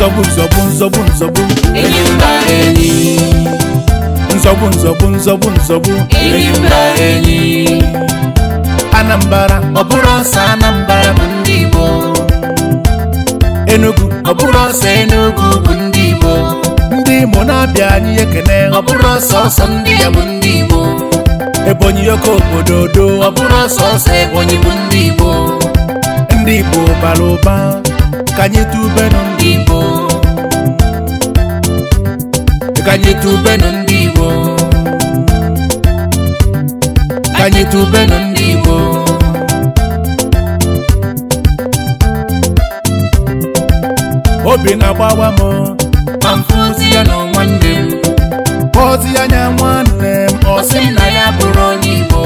nzọgbu nzọgbu nzọgbu nzọgbu enyi enyi nzọgbu nzọgbu nzọgbu nzọgbu enyi mba enyi Anambra ọ bụrụ ọsọ Anambara bụ ndị Igbo Enugu ọ bụrụ ọsọ Enugu bụ ndị Igbo ndị Imo na-abịa anyị ekene ọ bụrụ ọsọ ọsọ ndị ya bụ ndị Igbo Ebonyi oke obodo odo ọ bụrụ ọsọ ọsọ Ebonyi bụ ndị Igbo ndị Igbo bara ụba ka anyị tubenu ndị Igbo ka anyị tubenu ndị Igbo ka anyị tubenu ndị Igbo obi na-agbawa m ma ya na nwanne m kpọzi ya nya nwanne m ọ sị na ya bụrụ onye Igbo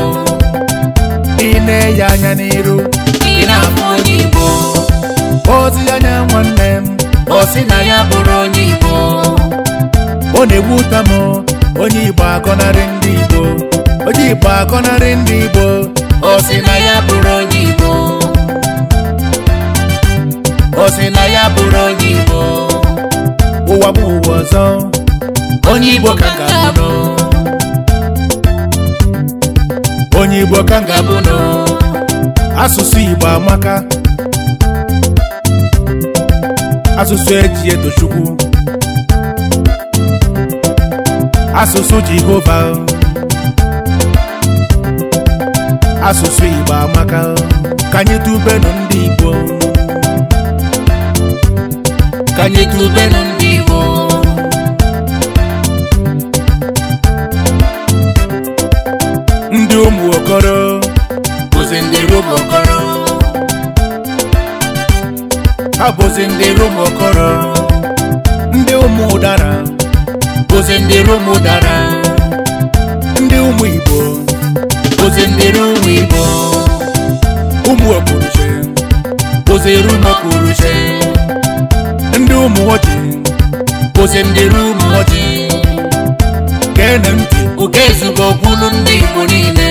ị na anya n'iru ị na-abụ onye Igbo ozi ya nye nwanne m o si na ya bụrụ onye Igbo ọ na-egbu ụta m onye Igbo akọnarị ndị Igbo onye Igbo akọnarị ndị Igbo o si na ya bụrụ onye Igbo o si na ya bụrụ onye Igbo ụwa bụ ụwa ọzọ onye Igbo ka ga-abụ onye Igbo ka ga-abụ asụsụ Igbo amaka asụsụ eji eto chukwu asụsụ jehova asụsụ igbo amaka ka anyị tubenu ndị igbo ka anyị tubenu ndị igbo ndị ụmụ okoro bụzi ndị ụmụ okoro ha bụzi ndị rumokoro ndị ụmụ ụdara bụzi ndị rum dara, ndị ụmụ igbo bụzi ndị rum igbo ụmụ okpuruche bụzi rum okpuruche ndị ụmụ ọchị. bụzi ndị rum ọjị gene ntị oge ezugbo ogbulu ndị igbo niile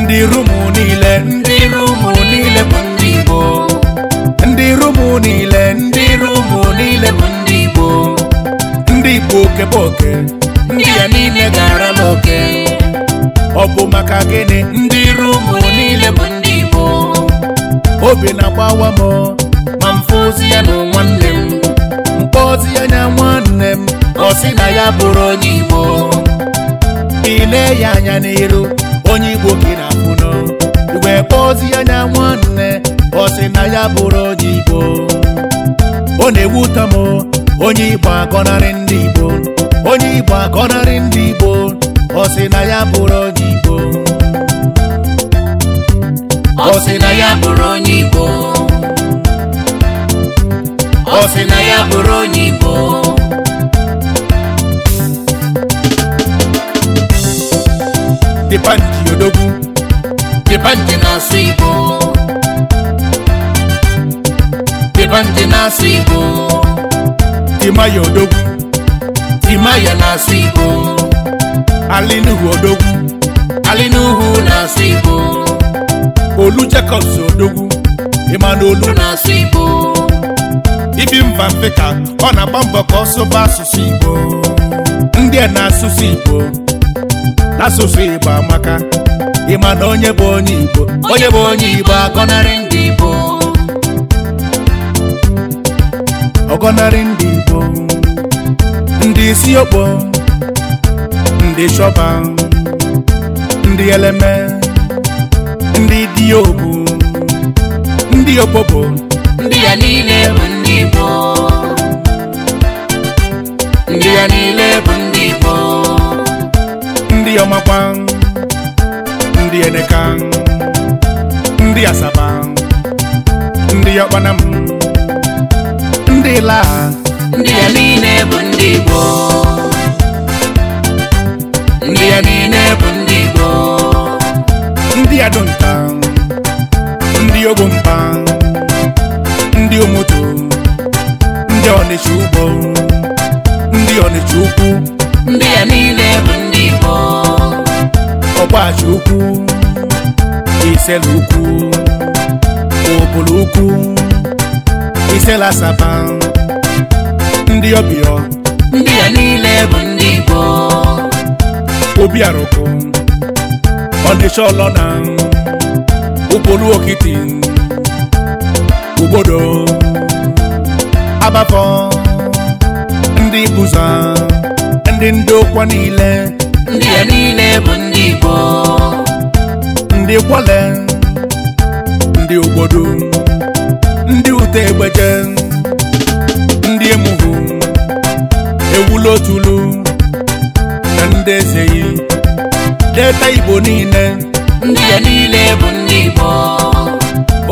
ndị rum niile ndị rum niile bụ ndị ụmụ niile ndị ru ụmụ niile bụ ndị Igbo ndị Igbo okeboke ndị ya niile gara n'oke ọ bụ maka gịnị ndị ru ụmụ niile bụ ndị Igbo obi na-agbawa m ma mfe ozi ya na nwanne m mkpọ ozi ya na nwanne m ọ sị na ya bụrụ onye Igbo ile ya anya n'iru onye Igbo gị na-afụnụ igwe kpọọ ozi ya na nwanne ọ sị na ya bụrụ onye igbo ọ na-ewu m onye igbo agọnarị ndị igbo onye igbo agọnarị ndị igbo ọ na ya bụrụ onye igbo ọ na ya bụrụ onye igbo ọ sị na ya bụrụ onye igbo dịpanji odogwu dịpanji na-asụ igbo na-asụ Igbo Timaya Odogwu na-asụ ibo. Alinuhu Odogwu Alinuhu na-asụ Igbo Olu Jacobs Odogwu Emmanuel na-asụ ibo? ibi mba mbeka ọ na-agba mbọ ka ọ asụsụ Igbo ndị a na-asụsụ Igbo n'asụsụ Igbo amaka ịma na onye bụ onye Igbo onye bụ onye ibo agọnarị ndị ọgọnarị ndị Igbo ndị isi okpo ndị shọba ndị eleme ndị diobu ndị okpokpo ndị ya niile bụ ndị Igbo ndị ya niile bụ ndị Igbo ndị ọmakwa ndị eneka ndị asaba ndị ọkpana m ndị la ndị ya niile bụ ndị Igbo ndị ya niile bụ ndị Igbo ndị ndị ogbompa ndị omoto ndị ọnịcha ugbo ndị ọnịcha ukwu ndị ya niile bụ ndị ukwu iselu ukwu isela saba ndị ọbịa ndị a niile bụ ndị Igbo obi arụkụ ọnịcha ọlọna ụkpụrụ okiti obodo agbafọ ndị bụza ndị ndị ụkwọ niile ndị a niile bụ ndị Igbo ndị kwale ndị obodo ndị ute egbeje ndị emuhu ewulotulu na ndị ezeyi deta igbo niile ndị ya niile bụ ndị igbo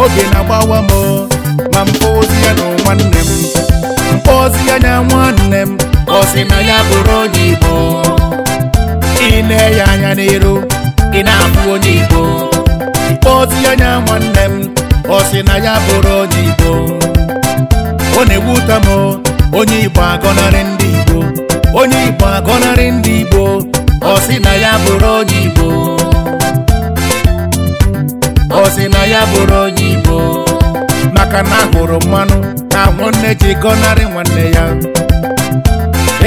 oge na-agbawa m ma mkpa ozi ya na nwanne m mkpa ozi ya na nwanne m ọ sị na ya bụrụ onye igbo ị na anya n'iru ị na onye igbo mkpa ozi ya na nwanne m ọ sị na ya bụrụ onye Igbo ọ na-egbu ụta m onye Igbo agọnarị ndị Igbo onye Igbo agọnarị ndị Igbo ọ sị na ya bụrụ onye Igbo ọ sị na ya bụrụ onye Igbo maka na hụrụ mmanụ na nwanne ji gọnarị nwanne ya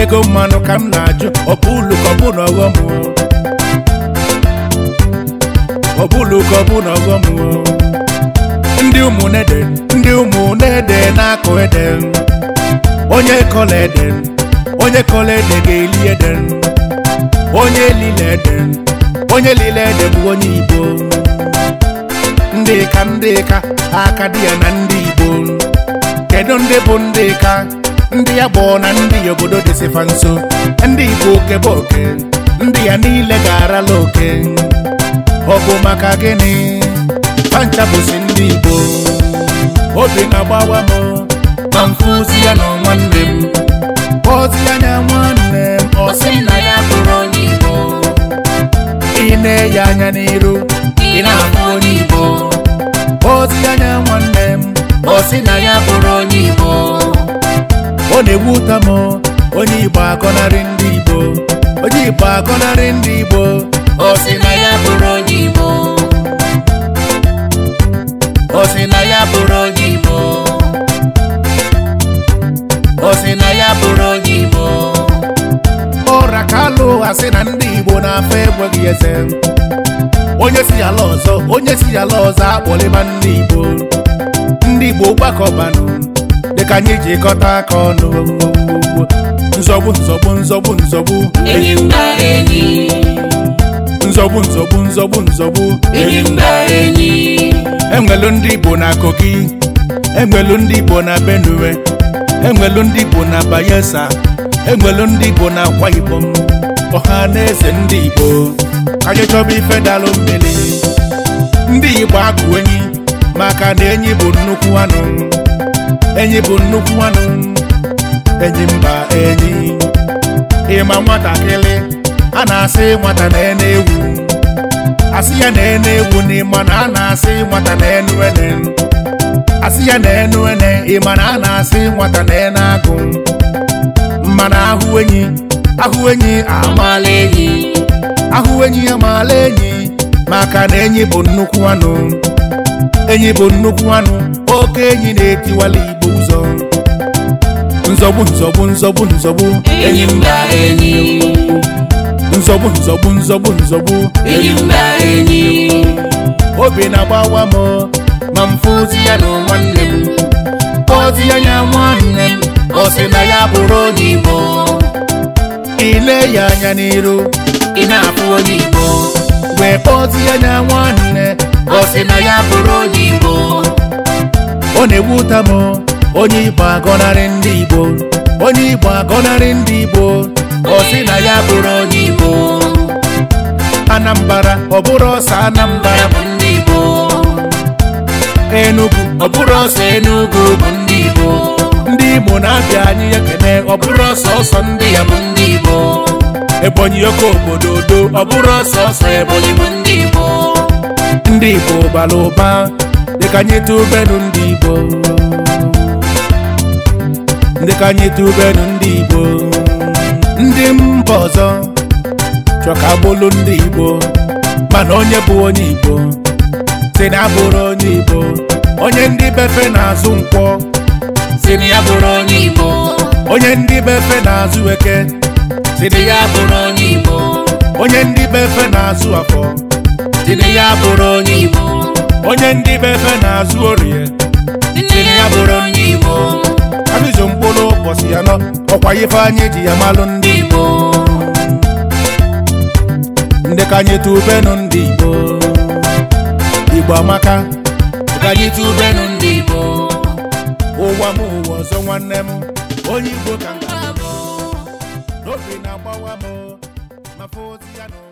ego mmanụ ka m na-ajụ ọbụlukọbụ na ọghọm ọbụlukọbụ na ọghọm ndị ụmụnede ndị ụmụnede na-akụ ede onye kọla ede onye kọla ede ga-eli ede onye lile ede onye lile ede bụ onye igbo ndị ka ndị ka aka dị ya na ndị igbo kedu ndị bụ ndị ka ndị ya gbọọ na ndị obodo dịsịfa nso ndị igbo okebe oke ndị ya niile ga-arala oke ọ bụ maka gịnị ndị Igbo obi na-agbawa m ma mfụzi ya na nwanne m ozi ya nwanne m ọsị na ya bụrụ onye Igbo ị na anya n'iru ị na-abụ onye Igbo ozi ya na nwanne m ọsị na ya bụrụ onye Igbo ọ na-egbu ụta m onye Igbo akọnarị ndị Igbo onye Igbo ndị Igbo ọsị na ya bụrụ asị na ndị Igbo na-afọ enweghị eze onye si ala ọzọ onye si ala ọzọ akpọlịba ndị Igbo ndị Igbo gbakọbanụ dịka anyị jikọta aka ọnụ nzọgbu nzọgbu nzọgbu nzọgbu enyi mba enyi nzọgbu nzọgbu nzọgbu nzọgbu enyi mba enyi enwelu ndị Igbo na Kogi enwelu ndị Igbo na Benue enwelu ndị Igbo na Bayelsa enwelu ndị Igbo na Akwa Ibom ọha na eze ndị Igbo anyị chọba ife dalụ mmiri ndị Igbo akụ enyi maka na enyi bụ nnukwu anụ enyi bụ nnukwu anụ enyi mba enyi ịma nwatakịrị a na-asị nwata na ene ewu asị ya na ene ewu na a na-asị nwata na enu ene asị ya na enu ene ịma na a na-asị nwata na ene agụ Mmanụ ahụ enyi ahụ enyi amaala enyi ahụ enyi amaala enyi maka na enyi bụ nnukwu anụ enyi bụ nnukwu anụ oke enyi na-etiwala igbo ụzọ nzọgbu nzọgbu nzọgbu nzọgbu enyi mba enyi nzọgbu nzọgbu nzọgbu nzọgbu enyi mba enyi obi na-agbawa m ma m fụzi ya na nwanne m ozi ya nya nwanne m ọ sị na ya bụrụ onye igbo ile ya anya n'iru ị na-afụ onye igbo wee kpọzi ya nya nwanne ọ sị na ya bụrụ onye igbo ọ na-egbu ụta m onye igbo agọnarị ndị igbo onye igbo agọnarị ndị igbo ọ na ya bụrụ onye igbo anambra ọ bụrụ ọsọ Anambara bụ ndị igbo enugu ọ bụrụ ọsọ enugu bụ ndị igbo ndị Igbo na-abịa anyị ekene ọ bụrụ ọsọsọ ndị ya bụ ndị Igbo Ebonyi oke obodo odo ọ bụrụ ọsọsọ Ebonyi bụ ndị Igbo ndị Igbo bara ụba dịka anyị tubenu ndị Igbo ka anyị tubenu ndị Igbo ndị mba ọzọ chọ ka bụlụ ndị Igbo mana onye bụ onye Igbo si na abụrụ onye Igbo onye ndị befe na-azụ nkwọ si na ya bụrụ onye Igbo onye ndị be efe na-azụ eke si na ya bụrụ onye Igbo onye ndị be efe na-azụ afọ si na ya bụrụ onye Igbo onye ndị be efe na-azụ orie si na ya bụrụ onye Igbo abịzụ mkpụrụ ụbọchị ya nọ ọkwa ifeanyị ji ya malụ ndị Igbo ndị ka anyị tubenu ndị Igbo Igbo amaka ka anyị tubenu ndị Igbo ụwa m ụwa ọzọ nwanne m onye Igbo ka m n'obi na-agbawa m mafe ozi ya na